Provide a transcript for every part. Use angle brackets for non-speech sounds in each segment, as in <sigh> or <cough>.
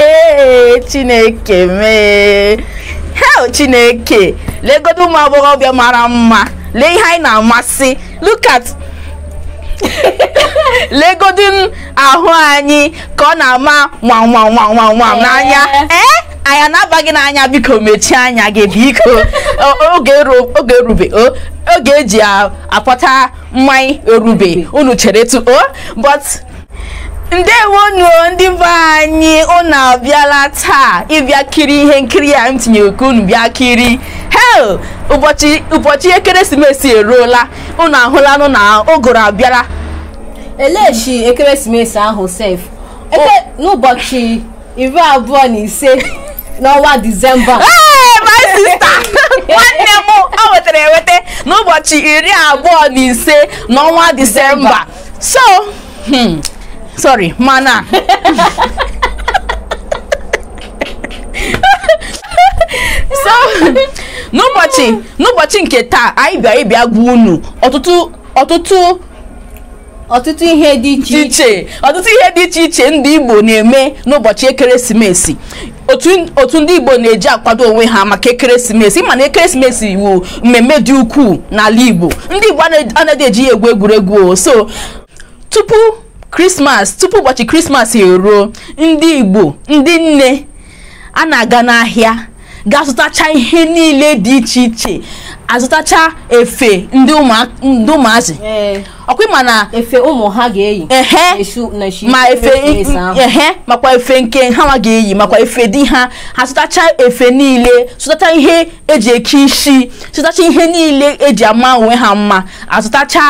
ee chineke mee hel chineke legodo ụmụ agbọghọbịa mara mma lee ihe anyị na-amasị look at <laughs> ahụ anyị ka ọ na-ama nwanwanwanwanwam n'anya ee eh? anyị anabaghị n'anya biko mechie anya gị biko oge erube oge eji apụta mmanya erube unu chere tu o ndewonu ndị be anyị unu abịala taa ịbịa kiri ihe nkiri ya m tinyere ka unu bịa kiri hel ụbọchị ekeresimesi eruola unu ahụlanụ na ụgụrụ abịara. elechi ekeresimesi ahụ sef oh. n'ụbọchị iri abụọ na ise n'ọnwa disemba my sister <laughs> nwanne m o wetara eweta n'ụbọchị iri abụọ na ise n'ọnwa disemba so hmm. sorry mana <laughs> so n'ụbọchị nke taa anyị bịa ịbịa gwa unu ọtụtụ ọtụtụ ọtụtụ ihe dị iche iche ọtụtụ ihe dị iche ndị Igbo na-eme n'ụbọchị ekeresimesi otu ndị Igbo na-eji akwado onwe ha maka ekeresimesi ma na ekeresimesi iwu mmemme dị ukwuu n'ala Igbo ndị Igbo anaghị eji ya egwu egwuregwu o tupu krismas tupu ụbọchị krismas eruo ndị igbo ndị nne a na-aga n'ahịa ga-azụtacha ihe niile dị iche iche azụtacha efe ndị ụmụazị ọkwa na efe ụmụ ha ga-eyi makwa efe nke ha ma ga-eyi makwa efe di ha ha zụtacha efe niile zụtacha ihe eji eke isi zụtacha ihe niile eji ama onwe ha mma azụtacha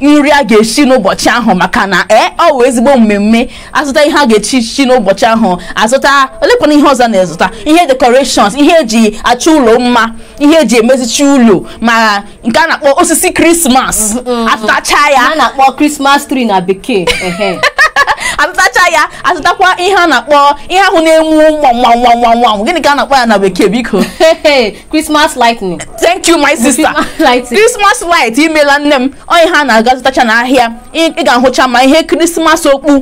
nri a ga-echi n'ụbọchị ahụ maka na ee ọ wụ ezigbo mmemme azụta ihe a ga-echi chi n'ụbọchị ahụ azụta olekwana ihe ọzọ na-ezụta ihe decorations ihe eji achụ ụlọ mma ihe eji emezichi ụlọ ma nke a na-akpọ osisi krismas atụtacha ya a na-akpọ krismas tree na bekee azụtacha ya azụtakwa ihe a na-akpọ ihe ahụ na-enwu nwanwanwanwanwanw gịnị ka a na-akpọ ya na bekee biko Christmas lightning thank you my sister Christmas light imela nne m onye ha na-aga zụtacha n'ahịa ị ga-ahụcha ma ihe krismas okpu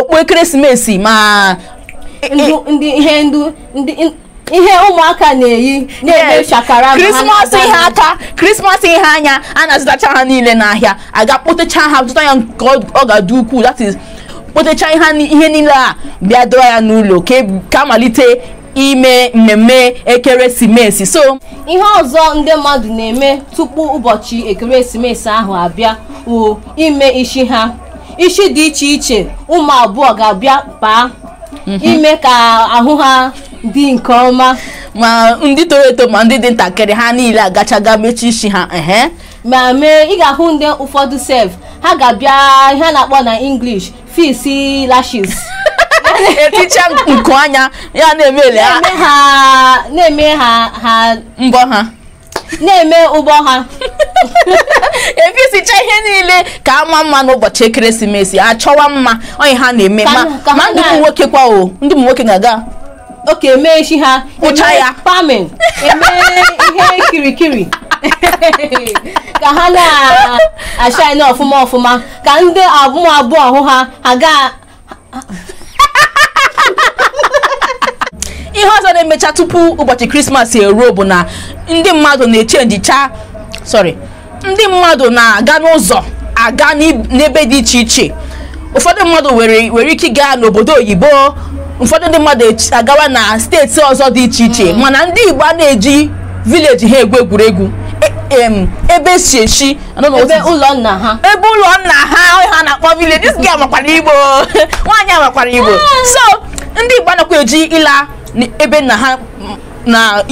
okpu ekeresimesi ma ihe ndu ihe ụmụaka na-eyi na-eme shakara krismas ihe aka krismas ihe anya a na-azụtacha ha niile n'ahịa aga kpotacha ha zụta ya nke ọ ga-adị ukwuu that is kpotecha ihe niile a bịa doo ya n'ụlọ ka e malite ime mmemme ekeresimesi so ihe ọzọ ndị mmadụ na-eme tupu ụbọchị ekeresimesi ahụ abịa wụ ime ishi ha ishi dị iche iche ụmụ abụọ ga-abịa kpaa mhm. ime ka ahụ ha dị nke ọma ma ndị toro eto ma ndị dị ntakịrị ha niile agachaga mechi isi ha ma mee ị ga-ahụ ndị ụfọdụ sef ha ga-abịa ihe na-akpọ na English fisi lashes eticha nku anya ya na-emele ha na-eme ha ha mbọ ha na-eme ụgbọ ha efisicha ihe niile ka ama mma n'ụbọchị ekeresimesi achọwa mma onye ha na-eme ma ndị ụmụ nwoke kwa o ndị ụmụ nwoke ga-aga oke mee echi ha kpụcha ya pamin eme ihe kirikiri <laughs> ka ha na-ashine uh, ọfụma ọfụma ka ndị uh, abụọ abụọ ha aga <laughs> ihe ọzọ na-emecha tupu ụbọchị krismas eruo bụ na ndị mmadụ na-echenjicha sorry ndị mmadụ na-aga n'ụzọ aga n'ebe dị iche iche ụfọdụ mmadụ nwere ike gaa n'obodo oyibo ụfọdụ ndị mmadụ e, agawa na steeti ọzọ dị iche iche mana ndị igbo a na-eji vileji ha egwu egwuregwu ebe si echi ebe ụlọ nna ha ebe ụlọ nna ha ha na-akpọ village this girl makwara igbo <laughs> nwaanyị amakwara igbo ah. so ndị igbo anakwa eji ịla ebe nna ha na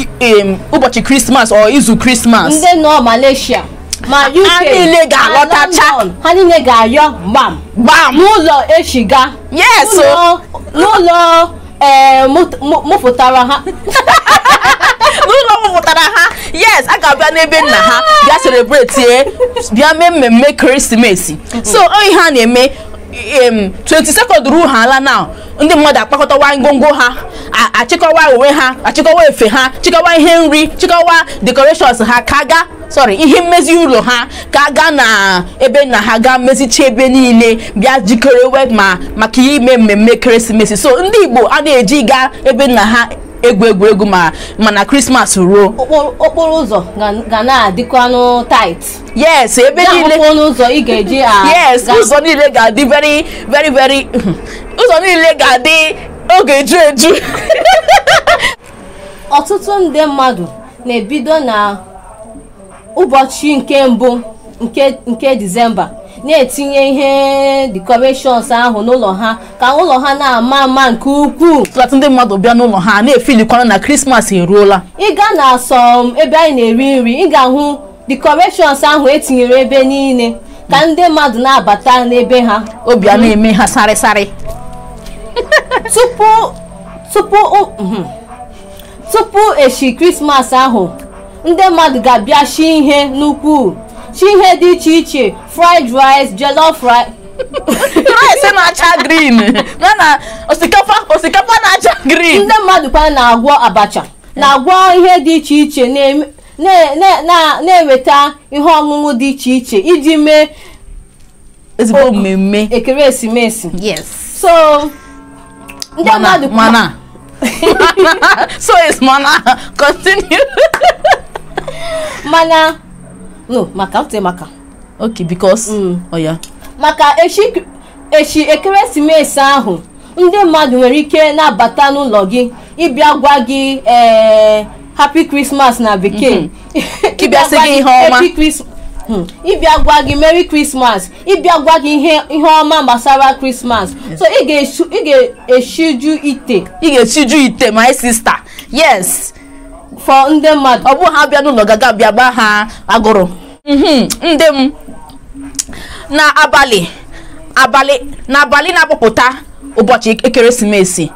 ụbọchị krismas ọ izu krismas ndị nọ malaysia ma uk ha niile ga-alọtacha ha niile ga-ayọ gbam gbam n'ụlọ echiga yes n'ụlọ ee eh, mụpụtara ha <laughs> n'ụlọ mụpụtara ha yes a ga-abịa n'ebe nna ha bịa celebrate eh, bịa mee mmemme ekeresimesi. so oyi ha na-eme 22nd ruo ha ala ndị mmadụ akpakọtawa ngwongwo ha achịkọwa uwe ha achịkọwa efe ha chịkọwa ihe nri chịkọwa decorations ha kaga sorry ihe mmezi ụlọ ha ka aga na ebe na ha ga mezicha ebe niile bịa jikere ma maka ihe ime mmemme ekeresimesi so ndị igbo a na-eji gaa ebe nna ha egwu egwuregwu ma mana krismas ruo okporo ụzọ ga na-adịkwanụ tight yes ebe niile ụzọ ị ga-eji ah, yes ụzọ niile ga-adị very very very <laughs> ụzọ niile ga-adị oge eju eju <laughs> ọtụtụ ndị mmadụ na-ebido na ụbọchị nke mbụ nke disemba na-etinye ihe decorations ahụ n'ụlọ ha ka ụlọ ha na-ama ama nke ukwuu tụlatụ ndị mmadụ bịa n'ụlọ ha na-efilikwana na krismas eruola ịga na asọm ebe anyị na-eri nri ị ga-ahụ decorations ahụ etinyere ebe niile ka ndị mmadụ na-abata n'ebe ha obi a na-eme ha sarị tupu tupu tupu echi krismas ahụ ndị mmadụ ga-abịa shi ihe n'ukwuu shi ihe dị iche iche fried rice jollof rice <laughs> rice na-acha green na na osikapa osikapa na-acha green ndị mmadụ kwa na-agwọ abacha na-agwọ ihe dị iche iche na-eweta ihe ọṅụṅụ dị iche iche iji mee ezigbo mmemme ekeresimesi so ndị mmadụ mana <laughs> so is mana continue <laughs> mana no maka n tẹ maka. okay because mm. oya. Oh, yeah. maka echi echi ekeresimesi ahụ ndị mmadụ nwere ike na-abata n'ụlọ gị ịbịa gwa gị ee eh, happy christmas na bekee mhm. ịbịa gwa gị happy christmas hmm, ịbịa gwa gị merry christmas ịbịa gwa gị ihe ihe ọma gbasara christmas mhm. so ị ga-eshiju ite ị ga-eshiju ite my sister yes. fọ ndị mmadụ ọ bụ ha bịa n'ụlọ gaa bịa gba ha agụrụ mhm, ndị m n'abalị abalị n'abalị na-akpọpụta ụbọchị ekeresimesi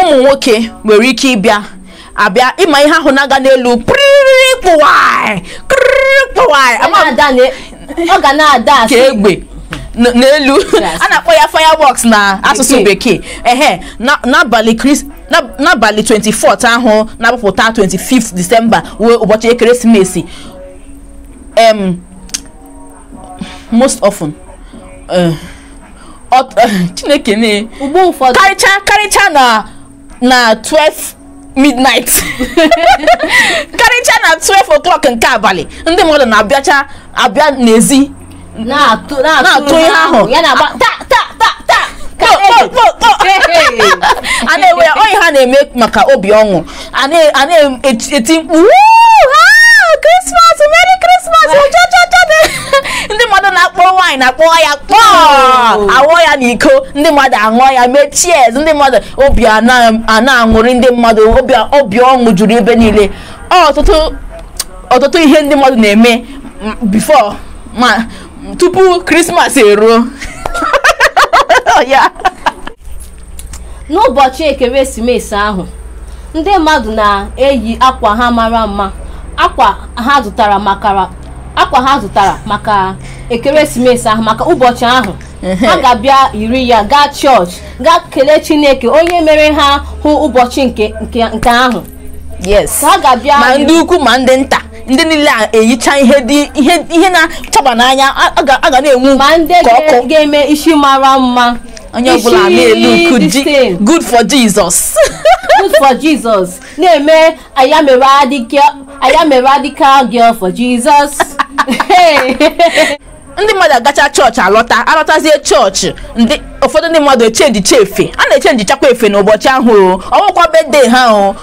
ụmụ nwoke nwere ike ịbịa abịa ịma ihe ahụ na-aga n'elu ka egbe n'elu a na-akpọ ya firebox na asụsụ bekee ehe n'abalị n'abalị 24 ahụ na-apụpụta 25 th disemba wee ụbọchị ekeresimesi em most often eh, eh, chineke ne karịcha karịcha na na 12 midnight <laughs> karịcha na 12 o'clock nke abalị ndị mmadụ na-abịacha abịa n'ezi na-atụ ihe ahụ ah, ta ta ta a na-enwe ya onye ha na-eme maka obi ọṅụ a e, na-eti e, mkpu krismas meri krismas ndị mmadụ na-akpọ nwaanyị na-akpọ ya kpọọ awọ ya n'iko ndị mmadụ aṅụọ ya mee cheers ndị mmadụ obi a na-aṅụrị ndị mmadụ obi ọṅụ juru ebe niile ọtụtụ ihe ndị mmadụ na-eme bifo ma tupu krismas eruo ya n'ụbọchị ekeresimesi ahụ ndị mmadụ na-eyi akwa ha mara mma akwa ha zụtara maka akwa ha zụtara maka ekeresimesi ahụ maka ụbọchị ahụ ha ga-abịa yiri ya gaa chọọchị gaa kelee chineke onye mere ha hụ ụbọchị nke ahụ yes ga-abịa ma ndị ukwu ma ndị nta ndị niile a na-eyicha ihe dị ihe ihe na-achaba n'anya a ga na-enwu ka ndị ga-eme isi mara mma onye ọbụla na-elu good for Jesus <laughs> good for Jesus na-eme ayamere adịka girl for Jesus <laughs> <laughs> ndị mmadụ agacha chọọchị alọta alọtazie chọọchị ndị ụfọdụ ndị mmadụ echenji efe a na-echenji chakwa efe n'ụbọchị ahụ o ọnwụkwa bedde ha o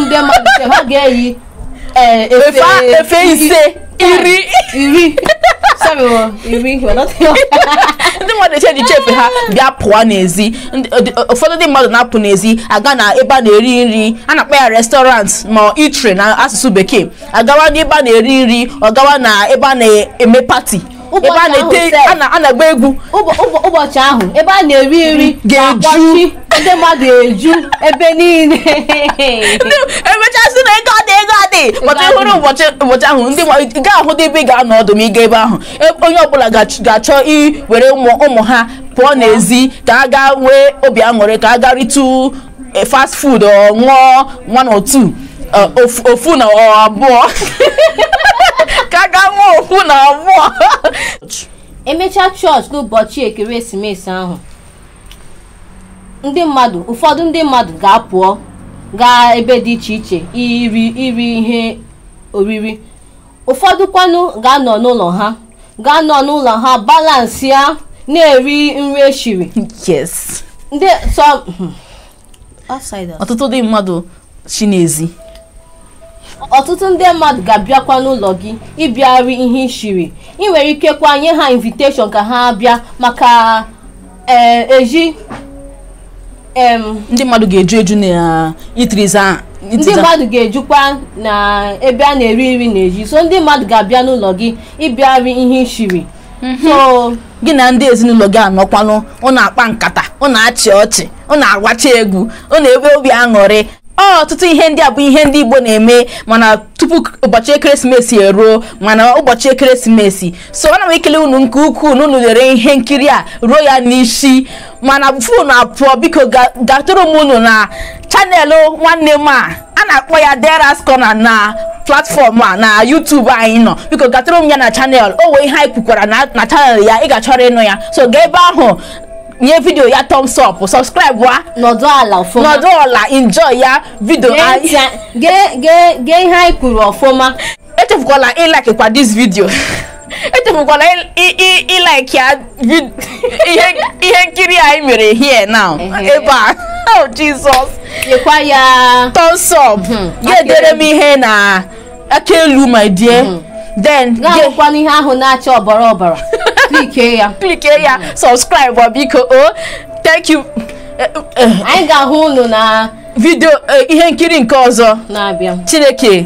ndị mmadụ ha ga-eyi Eh, efe ise iri iri <laughs> ndị mmadụ eche echiche efe ha bịa pụọ n'ezi ụfọdụ ndị mmadụ na-apụ n'ezi aga na ebe a na-eri nri a na-akpa ya restọrant ma itri na asụsụ bekee agawa n'ebe a na-eri nri ọ gawa na ebe a na-eme pati ebe a na-ete a na-agba egwu ụbọchị ahụ ebe a na-eri nri ga-eju ndị mmadụ eju ebe niile emechasị na ego adị ego adị mata ịhụrụ ụbọchị ụbọchị ahụ ndị ga ahụ ebe ị ga-anọ ọdụ ma ebe ahụ e, onye ọbụla ga-achọ iwere ụmụ ha pụọ n'ezi ka a gaa nwee obi aṅụrị ka a gaa ritụ e, fast food ọ ṅụọ one or two uh, ofu na abụọ <laughs> aga nwa okwu na abụọ emechaa chọọchị n'ụbọchị ekeresimesi ahụ ndị mmadụ ụfọdụ ndị mmadụ ga-apụọ gaa ebe dị iche iche iri iri ihe oriri ụfọdụ kwanụ ga-anọ n'ụlọ ha ga-anọ n'ụlọ ha balansịa ya na-eri nri eshiri yes ndị hmm. ọtụtụ ndị mmadụ n'ezi ọtụtụ ndị mmadụ ga-abịakwa n'ụlọ gị ịbịarị ihe ishiri ị nwere ike kwa nye ha inviteshọn ka ha bịa maka e, eji ndị mmadụ ga-eju eju na itiriza ndị mmadụ ga-ejukwa na ebe a na-eri nri na-eji so ndị mmadụ ga-abịa n'ụlọ gị ịbịarị ihe ishiri mhm. gị na ndị ezinụlọ gị anọkwanụ ọ na-akpa nkata ọ na-achị ọchị ọ na-agwacha egwu ọ na-ebe obi aṅụrị ọtụtụ ihe ndị a bụ ihe ndị Igbo na-eme mana tupu ụbọchị ekeresimesi eruo mana ụbọchị ekeresimesi so ana m ekele unu nke ukwuu na unu lere ihe nkiri a ruo ya n'isi mana na apụọ biko gatụrụ m unu na chanelụ nwanne m a a na-akpọ ya Deras Corner na platfọm a na YouTube anyị nọ biko gatụrụ m ya na chanel o wee ihe anyị kwukwara na chanel ya ị ga-achọrọ ịnụ ya so gaa ebe ahụ nye video ya thumbs up subscribe wa. nọdụ ala ọfụma nọdụ ala enjoy ya video anyị. gee gee gee ihe anyị kwuru ọfụma. echefukwala ịlike kwa dis video <laughs> echefukwala ịlike ya <laughs> ihe nkiri anyị mere here now ebe a <laughs> oh jesus. nyekwa ya. thumbs up. Mhm. ya edere m ihe na aka elu my dear. Mhm. then. gaa hụkwana ihe ahụ na-acha ọbara ọbara. klike ya klike ya sọbskraịbụ biko o oh, thank you uh, uh. anyị ga-ahụ unu na vidio eh, ihe nkiri nke ọzọ na-abịa chineke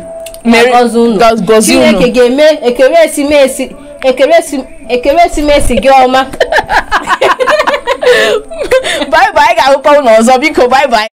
gozi unu chineke ga-eme ekeresimesi ekeresimesi gị ọma bye bye anyị ga-ahụkwa ụlọ ọzọ biko bye bye